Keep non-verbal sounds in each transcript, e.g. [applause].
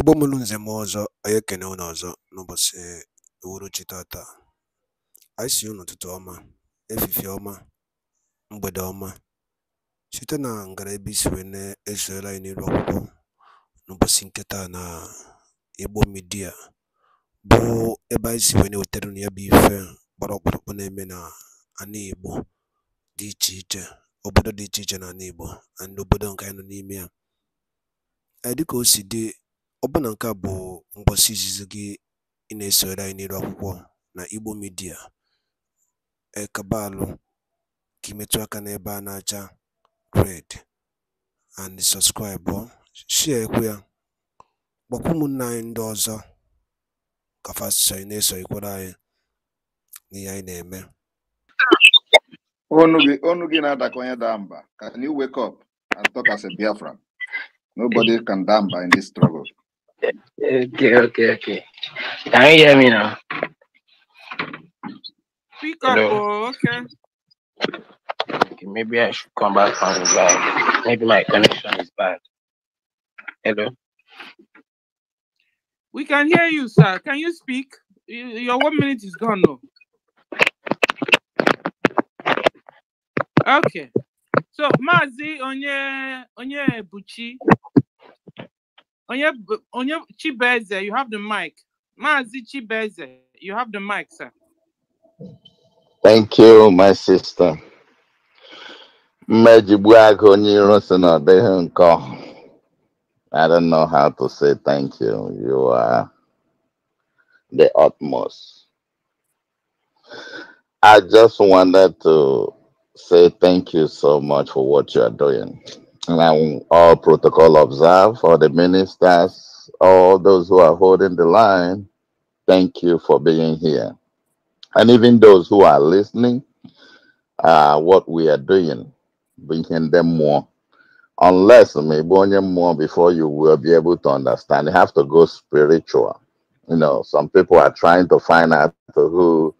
Igbo mụrụ nze m ọzọ, anyị ekene unu ọzọ n'ụbọchị uhuruchi tata. Anyị sị unu ụtụtụ ọma, efifie ọma, mgbede ọma, site na ngara ebe isi wee na anyị n'iru akwụkwọ n'ụbọchị nketa na Igbo midia bụ ebe anyị si wee na-ewetara unu ya bụ ife gbara ọkpụrụkpụ na-eme na ana Igbo dị iche iche, obodo dị iche iche na ana Igbo na obodo nke anyị nọ n'ime ya. Dịka o si dị Ọbụna nke a bụ ngwụsị izizi gị ị na esoro anyị n'elu akwụkwọ na Igbo Media. Ekabaalụ ka ị metụ aka n'ebe a na-acha red and sọpskraịbụ, shịakwa ya, gwakwa ụmụnna anyị ndị ọzọ ka fa ị na-esonyekwara eso anyị n'ihe anyị na-eme. ọnụ gị na-adakọ onye daa mba. Can you wake up and talk as a biafra Nobody can daa mba in this struggle. Okay, okay, okay. Can you hear me now? Speak up, oh, okay. okay. Maybe I should come back on. the line. Maybe my connection is bad. Hello? We can hear you, sir. Can you speak? Your one minute is gone now. Oh. Okay. So, Mazi Onye Onye Buchi, Onye, Onye Chibeze, you have the mic. Mazi Chibeze, you have the mic, sir. Thank you, my sister. I don't know how to say thank you. You are the utmost. I just wanted to say thank you so much for what you are doing and I, all protocol observed for the ministers, all those who are holding the line, thank you for being here. And even those who are listening, uh, what we are doing, bringing them more. Unless maybe more before you will be able to understand, you have to go spiritual. You know, some people are trying to find out who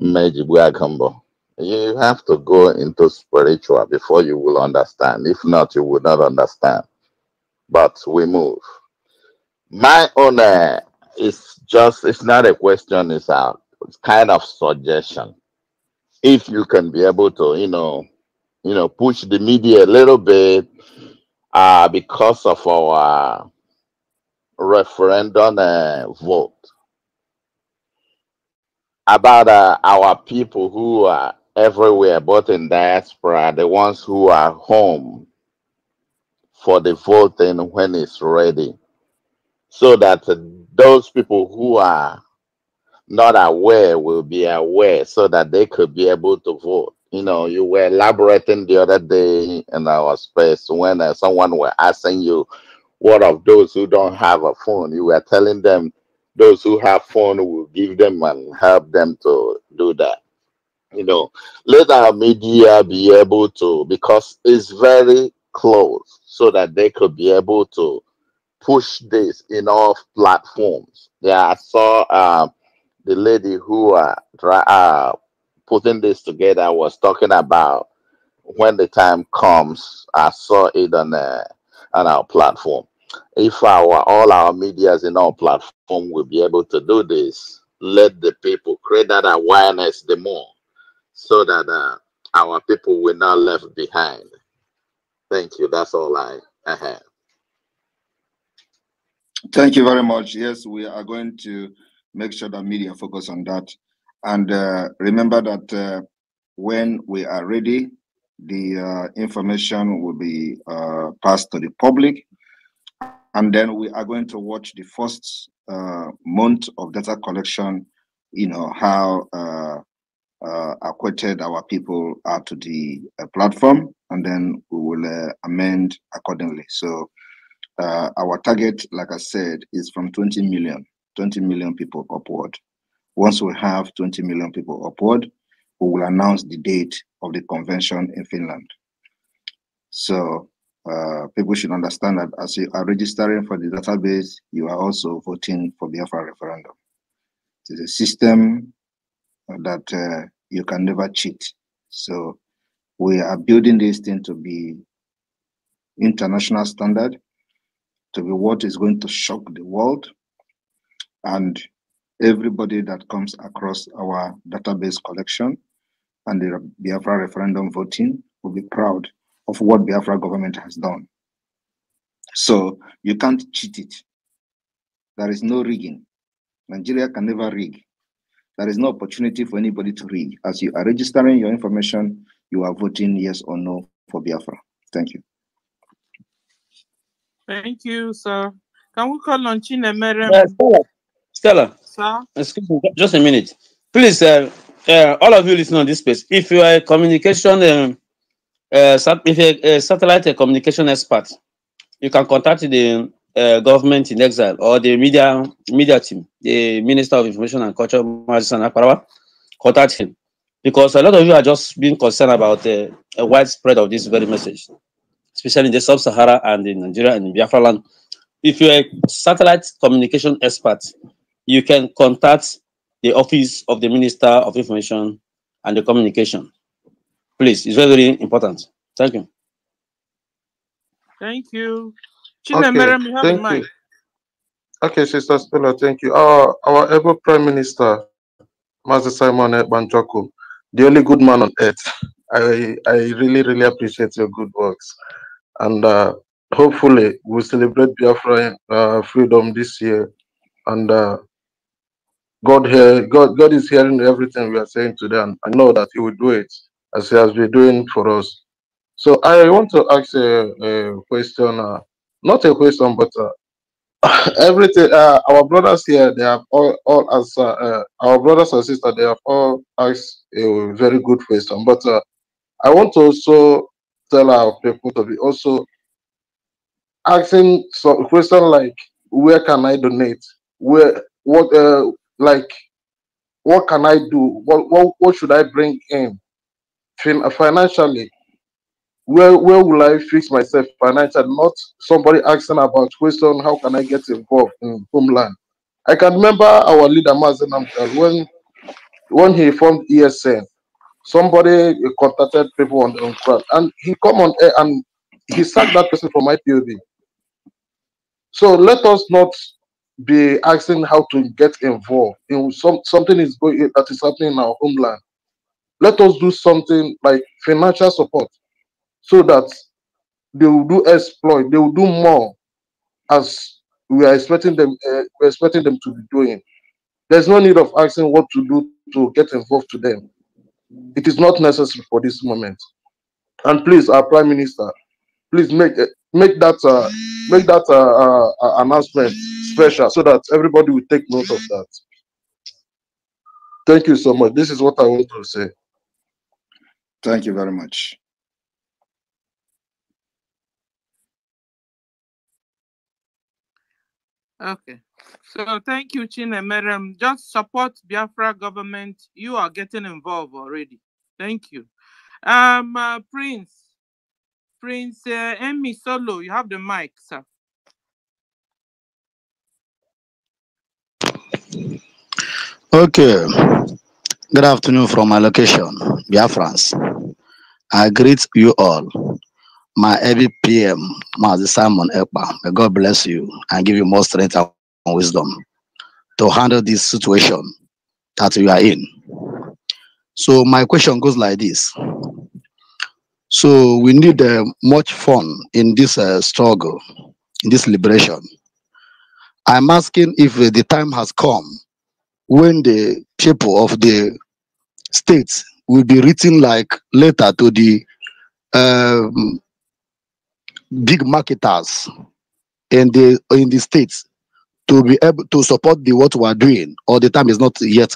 Mejibu Akambo you have to go into spiritual before you will understand. If not, you will not understand. But we move. My honor is just, it's not a question, it's a it's kind of suggestion. If you can be able to, you know, you know, push the media a little bit uh, because of our referendum uh, vote about uh, our people who are everywhere, but in diaspora, the ones who are home for the voting when it's ready, so that uh, those people who are not aware will be aware so that they could be able to vote. You know, you were elaborating the other day in our space when uh, someone were asking you, what of those who don't have a phone? You were telling them those who have phone will give them and help them to do that you know, let our media be able to, because it's very close, so that they could be able to push this in all platforms. Yeah, I saw uh, the lady who uh, uh, putting this together was talking about when the time comes. I saw it on uh, on our platform. If our all our media's in our platform will be able to do this, let the people create that awareness the more so that uh, our people were not left behind. Thank you. That's all I, I have. Thank you very much. Yes, we are going to make sure that media focus on that. And uh, remember that uh, when we are ready, the uh, information will be uh, passed to the public. And then we are going to watch the first uh, month of data collection, you know, how uh, uh, acquitted our people out to the uh, platform, and then we will uh, amend accordingly. So uh, our target, like I said, is from 20 million, 20 million people upward. Once we have 20 million people upward, we will announce the date of the convention in Finland. So uh, people should understand that as you are registering for the database, you are also voting for Biafra referendum. It is a system that uh, you can never cheat. So we are building this thing to be international standard, to be what is going to shock the world. And everybody that comes across our database collection and the Biafra referendum voting will be proud of what Biafra government has done. So you can't cheat it. There is no rigging. Nigeria can never rig. There is no opportunity for anybody to read. As you are registering your information, you are voting yes or no for Biafra. Thank you. Thank you, sir. Can we call on Chinemere? Uh, Stella, Stella. Sir? Excuse me, just a minute. Please, uh, uh, all of you listening on this space, if you are a communication, um, uh, if you're a satellite communication expert, you can contact the uh, government in exile or the media media team, the Minister of Information and Culture, Majisan Akparawa, contact him. Because a lot of you are just being concerned about uh, a widespread of this very message, especially in the sub-Sahara and in Nigeria and in Biafra land. If you're a satellite communication expert, you can contact the office of the Minister of Information and the Communication. Please, it's very, very important. Thank you. Thank you okay, thank You. Okay, Sister Stella, thank you. Our, our ever Prime Minister, Master Simon Banjoku, the only good man on earth. I, I really, really appreciate your good works. And uh, hopefully, we'll celebrate Biafra uh, freedom this year. And uh, God, hear, God, God is hearing everything we are saying today, and I know that He will do it as He has been doing for us. So I want to ask a, a question. Uh, not a question, but uh, [laughs] everything. Uh, our brothers here, they have all, all as uh, uh, our brothers and sisters, they have all asked a very good question. But uh, I want to also tell our people to be also asking some question like, where can I donate? Where what uh, like what can I do? What what, what should I bring in fin financially? where where will I fix myself financially? Not somebody asking about question, how can I get involved in homeland? I can remember our leader Mazen when when he formed ESN, somebody contacted people on, the crowd and he come on air and he sacked that person from IPOB. So let us not be asking how to get involved in some something is going that is happening in our homeland. Let us do something like financial support so that they will do exploit, they will do more as we are expecting them, uh, we're expecting them to be doing. There's no need of asking what to do to get involved to them. It is not necessary for this moment. And please, our Prime Minister, please make eh, make that uh, make that uh, uh, uh, announcement special so that everybody will take note of that. Thank you so much. This is what I want to say. Thank you very much. Okay. So thank you, Chinemerem. Just support Biafra government. You are getting involved already. Thank you. Um, uh, Prince, Prince uh, Emmy Solo, you have the mic, sir. Okay. Good afternoon from my location, Biafrans. I greet you all my every PM, Master Simon Ekpa. May God bless you and give you more strength and wisdom to handle this situation that you are in. So my question goes like this. So we need uh, much fun in this uh, struggle, in this liberation. I'm asking if uh, the time has come when the people of the states will be written like letter to the um, big marketers in the in the states to be able to support the what we are doing or the time is not yet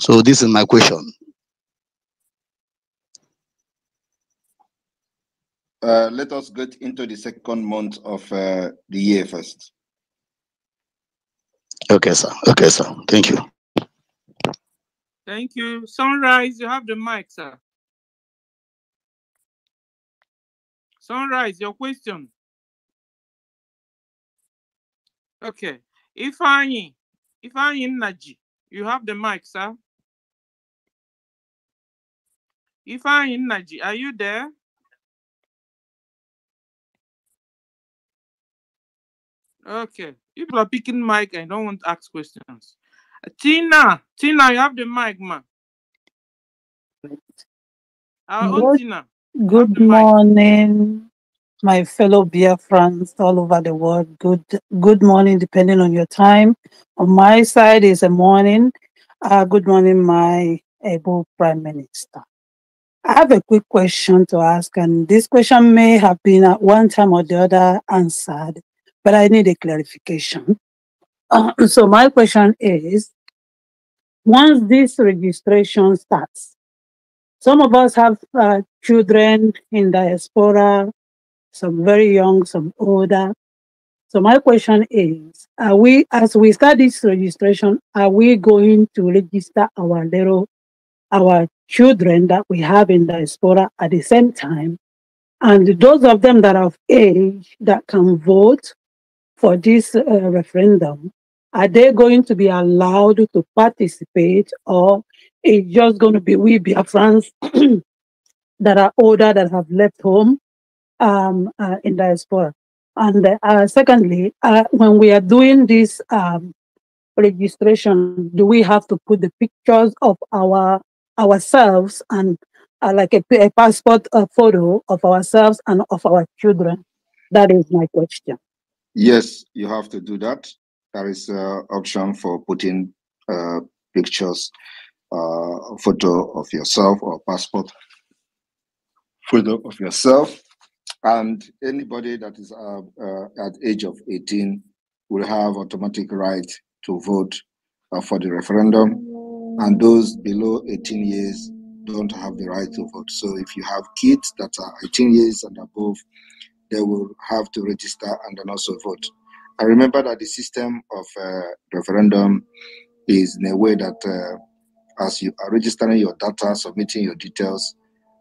so this is my question uh, let us get into the second month of uh, the year first okay sir okay sir thank you thank you sunrise you have the mic sir Sunrise, your question. Okay. if if I'm I in Naji, you have the mic, sir. If I'm in Naji, are you there? Okay. People are picking mic I don't want to ask questions. Tina, Tina, you have the mic, ma. Our own Tina. Good morning, my fellow beer friends all over the world. Good good morning, depending on your time. On my side is a morning. Uh, good morning, my able Prime Minister. I have a quick question to ask, and this question may have been at one time or the other answered, but I need a clarification. Uh, [clears throat] so my question is, once this registration starts, some of us have uh, children in diaspora, some very young, some older. So my question is, are we, as we start this registration, are we going to register our little, our children that we have in diaspora at the same time? And those of them that are of age that can vote for this uh, referendum, are they going to be allowed to participate or it's just going to be we Biafrans [clears throat] that are older that have left home um, uh, in diaspora. And uh, secondly, uh, when we are doing this um, registration, do we have to put the pictures of our ourselves and uh, like a, a passport a photo of ourselves and of our children? That is my question. Yes, you have to do that. There is an uh, option for putting uh, pictures, uh, photo of yourself or passport freedom of yourself. And anybody that is uh, uh, at age of 18 will have automatic right to vote uh, for the referendum. And those below 18 years don't have the right to vote. So if you have kids that are 18 years and above, they will have to register and then also vote. I remember that the system of uh, referendum is in a way that uh, as you are registering your data, submitting your details,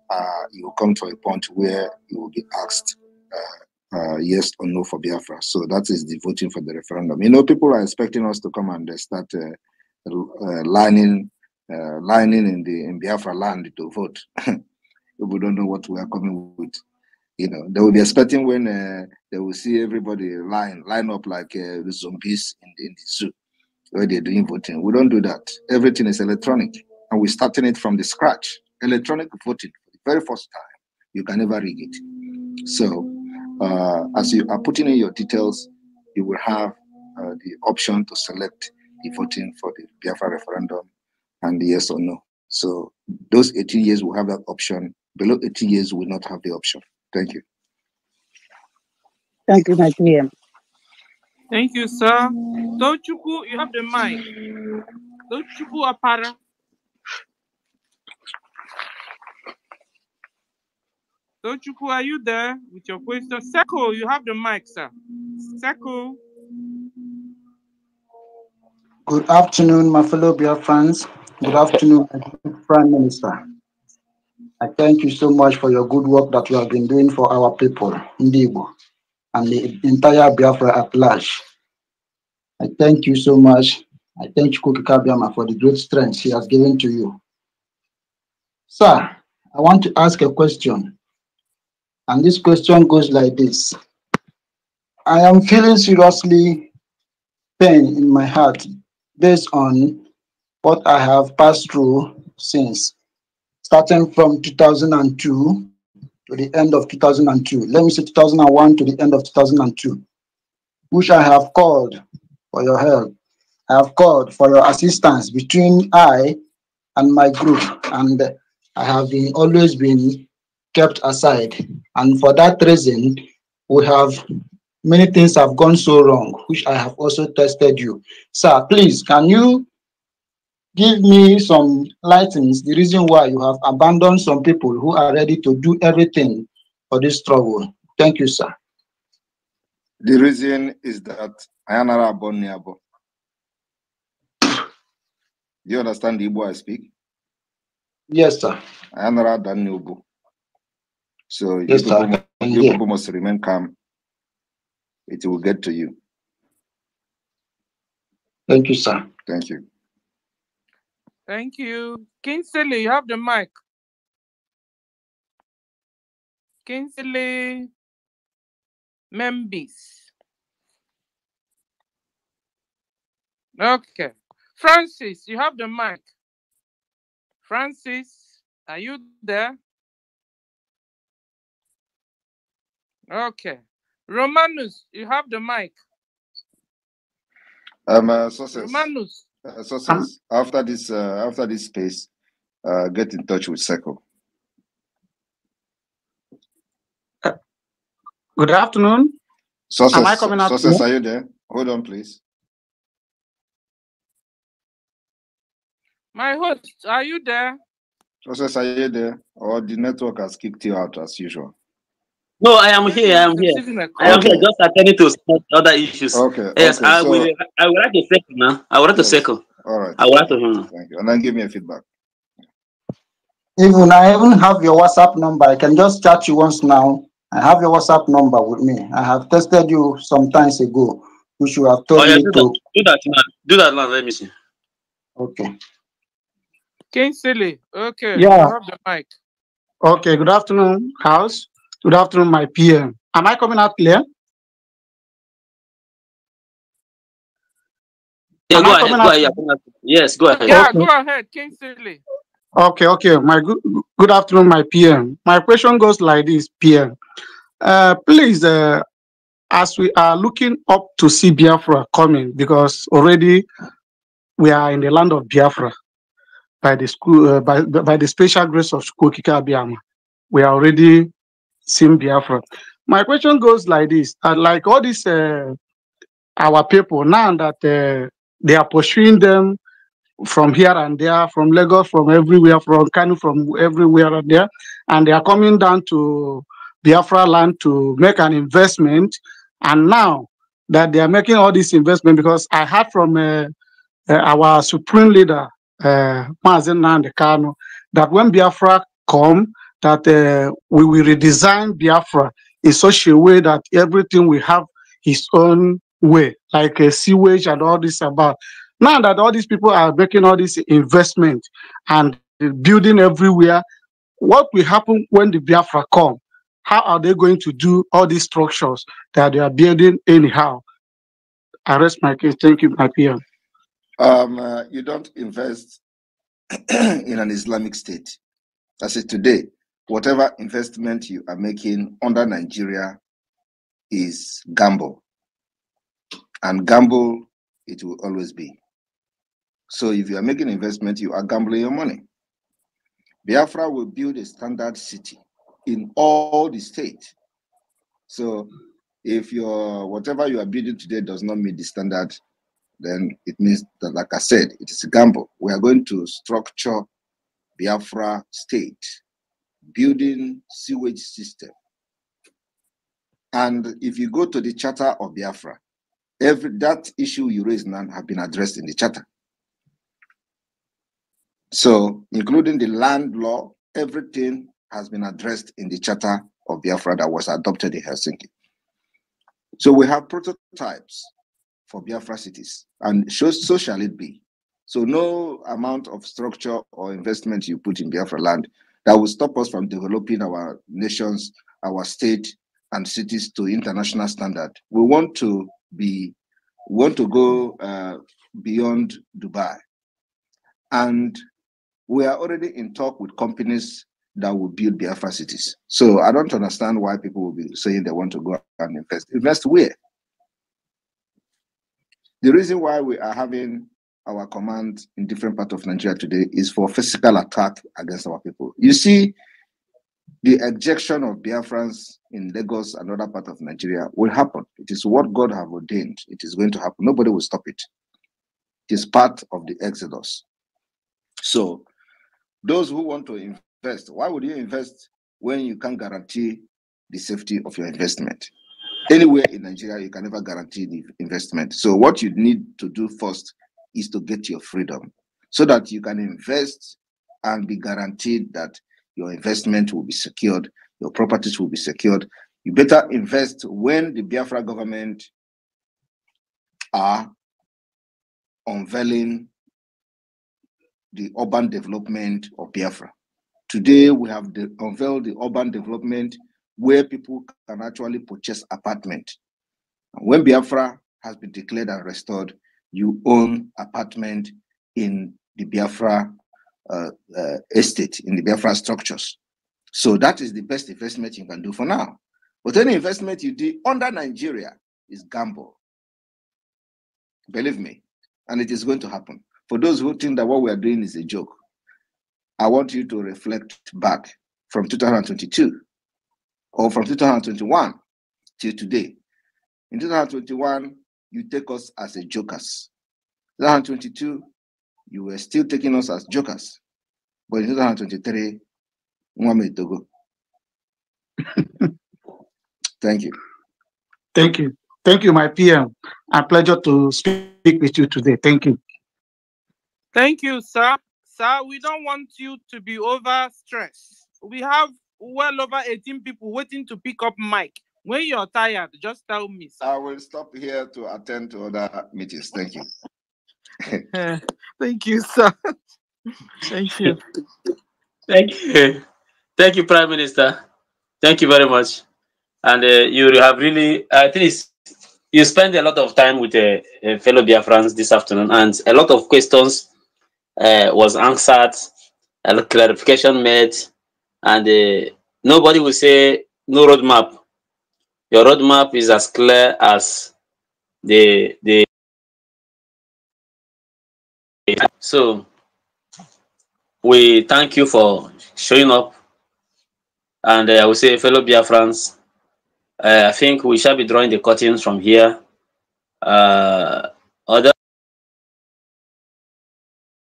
uh, you will come to a point where you will be asked uh, uh, yes or no for Biafra. So that is the voting for the referendum. You know, people are expecting us to come and start uh, uh, lining, uh, lining in the in Biafra land to vote. we [laughs] don't know what we are coming with. You know, they will be expecting when they will see everybody line line up like zombies in, in the zoo where they're doing voting. We don't do that. Everything is electronic, and we're starting it from the scratch. Electronic voting very first time. You can never rig it. So, uh, as you are putting in your details, you will have uh, the option to select the voting for the Biafra referendum and the yes or no. So, those 18 years will have that option. Below 18 years will not have the option. Thank you. Thank you, my dear. Thank you, sir. Don't you go. You have the mic. go Apara. Don't you? Tochukwu, are you there with your question? Seko, you have the mic, sir. Seko. Good afternoon, my fellow Biafrans. Good afternoon, Prime Minister. I thank you so much for your good work that you have been doing for our people, Ndibo, and the entire Biafra at large. I thank you so much. I thank Kuki Kabiama for the great strength he has given to you. Sir, I want to ask a question. And this question goes like this I am feeling seriously pain in my heart based on what I have passed through since, starting from 2002 to the end of 2002. Let me say 2001 to the end of 2002, which I have called for your help. I have called for your assistance between I and my group, and I have been always been kept aside. And for that reason, we have many things have gone so wrong, which I have also tested you. Sir, please, can you give me some lightings, the reason why you have abandoned some people who are ready to do everything for this struggle? Thank you, sir. The reason is that I am not you understand the Igbo I speak? Yes, sir. I am not Daniel so you, yes, people, you people must remain calm. It will get to you. Thank you, sir. Thank you. Thank you. Kinsley, you have the mic. Kinsley Membis. Okay. Francis, you have the mic. Francis, are you there? Okay. Romanus, you have the mic. Um, uh, sources. Romanus. Uh, sources. Um, after this, uh, after this space, uh, get in touch with Seco. Uh, good afternoon. Sources, Am I coming out? Sources, are you there? Hold on, please. My host, are you there? Sources, are you there? Or the network has kicked you out as usual? No, I am here. I am here. I am okay. here. Just attending to other issues. Okay. Yes, okay. I so, will. I would like to second now. I would like yes. to second. All right. I would like to. Him. Thank you. And then give me a feedback. Even I even have your WhatsApp number. I can just chat you once now. I have your WhatsApp number with me. I have tested you some times ago. You should have told oh, yeah, me do to that. do that now. Do that now. Let me see. Okay. silly. Okay. Yeah. Have the mic. Okay. Good afternoon, House. Good afternoon, my PM. Am I coming out clear? Yeah, go ahead, go ahead. Yes, go ahead. Yeah, okay. go ahead, Kingsley. Okay, okay. My good, good afternoon, my PM. My question goes like this, PM. Uh, please, uh, as we are looking up to see Biafra coming, because already we are in the land of Biafra by the school, uh, by, by the special grace of school Abiyama. We are already Sim Biafra. My question goes like this: uh, like all these uh, our people now that uh, they are pursuing them from here and there, from Lagos, from everywhere, from Kano, from everywhere and there, and they are coming down to Biafra land to make an investment. And now that they are making all this investment, because I heard from uh, uh, our supreme leader, uh, Mazen Nandekano, that when Biafra come, that uh, we will redesign Biafra in such a way that everything will have its own way, like a uh, sewage and all this about. Now that all these people are making all this investment and building everywhere, what will happen when the Biafra come? How are they going to do all these structures that they are building anyhow? I rest my case. Thank you, my peer. Um, uh, you don't invest [clears throat] in an Islamic state. That's it today whatever investment you are making under Nigeria is gamble. And gamble it will always be. So if you are making investment, you are gambling your money. Biafra will build a standard city in all the state. So if your whatever you are building today does not meet the standard, then it means that, like I said, it is a gamble. We are going to structure Biafra state building sewage system. And if you go to the Charter of Biafra, every that issue you raise now have been addressed in the Charter. So, including the land law, everything has been addressed in the Charter of Biafra that was adopted in Helsinki. So we have prototypes for Biafra cities, and so, so shall it be. So no amount of structure or investment you put in Biafra land that will stop us from developing our nations, our state, and cities to international standard. We want to be, want to go uh, beyond Dubai, and we are already in talk with companies that will build Biafra cities. So I don't understand why people will be saying they want to go and invest. Invest where? The reason why we are having our command in different parts of Nigeria today is for physical attack against our people. You see, the ejection of Biafrans in Lagos and other part of Nigeria will happen. It is what God have ordained. It is going to happen. Nobody will stop it. It is part of the exodus. So, those who want to invest, why would you invest when you can't guarantee the safety of your investment? Anywhere in Nigeria, you can never guarantee the investment. So, what you need to do first is to get your freedom so that you can invest and be guaranteed that your investment will be secured, your properties will be secured. You better invest when the Biafra government are unveiling the urban development of Biafra. Today, we have the, unveiled the urban development where people can actually purchase apartment. When Biafra has been declared and restored, you own apartment in the Biafra uh, uh, estate, in the Biafra structures. So that is the best investment you can do for now. But any investment you do under Nigeria is gamble. Believe me. And it is going to happen. For those who think that what we are doing is a joke, I want you to reflect back from 2022 or from 2021 till today. In 2021, you take us as a jokers. 2022, you were still taking us as jokers. But in 2023, Togo. [laughs] Thank you. Thank you. Thank you, my PM. A pleasure to speak with you today. Thank you. Thank you, sir. Sir, we don't want you to be overstressed. We have well over 18 people waiting to pick up Mike. When you're tired, just tell me. Sir. I will stop here to attend to other meetings. Thank you. [laughs] Thank you, sir. Thank you. Thank you. Thank you, Prime Minister. Thank you very much. And uh, you have really, I uh, think you spend a lot of time with uh, a uh, fellow Biafrans this afternoon, and a lot of questions uh, was answered, a clarification made, and uh, nobody will say no roadmap your roadmap is as clear as the the so we thank you for showing up and uh, i will say fellow biafrans uh, i think we shall be drawing the curtains from here uh, other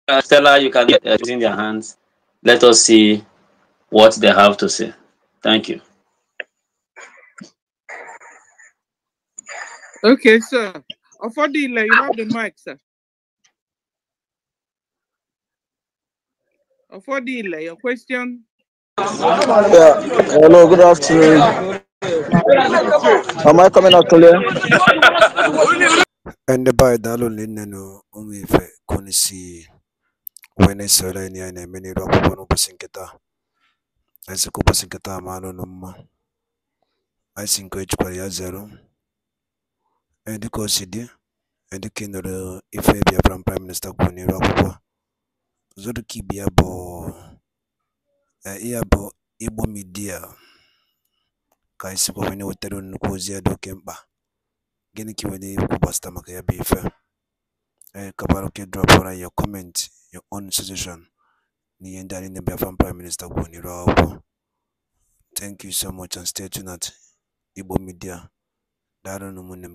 uh, Stella, you can get uh, in their hands. Let us see what they have to say. Thank you. Okay, sir. Afadila, you have the mic, sir. Afadila, your question? Yeah. Hello, good afternoon. Am I coming out clear? Ndị be anyị daalụ nne na ụmụ ife konisi wee na-esoro anyị anyị na-eme n'iru akwụkwọ n'ụbọchị nkịta anyị sị ka ụbọchị nkịta ma anụ mma anyị si nke ejikwara ya zero dị ife Prime n'iru akwụkwọ ya bụ ya bụ Igbo ka onye wetara nnukwu ozi ya dị oke mkpa gịnị ka maka ya bụ ife ndị anyị na Prime n'iru akwụkwọ thank you so much and stay tuned at Igbo Media daalụ ụmụnne m